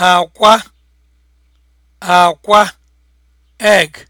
akwa akwa egg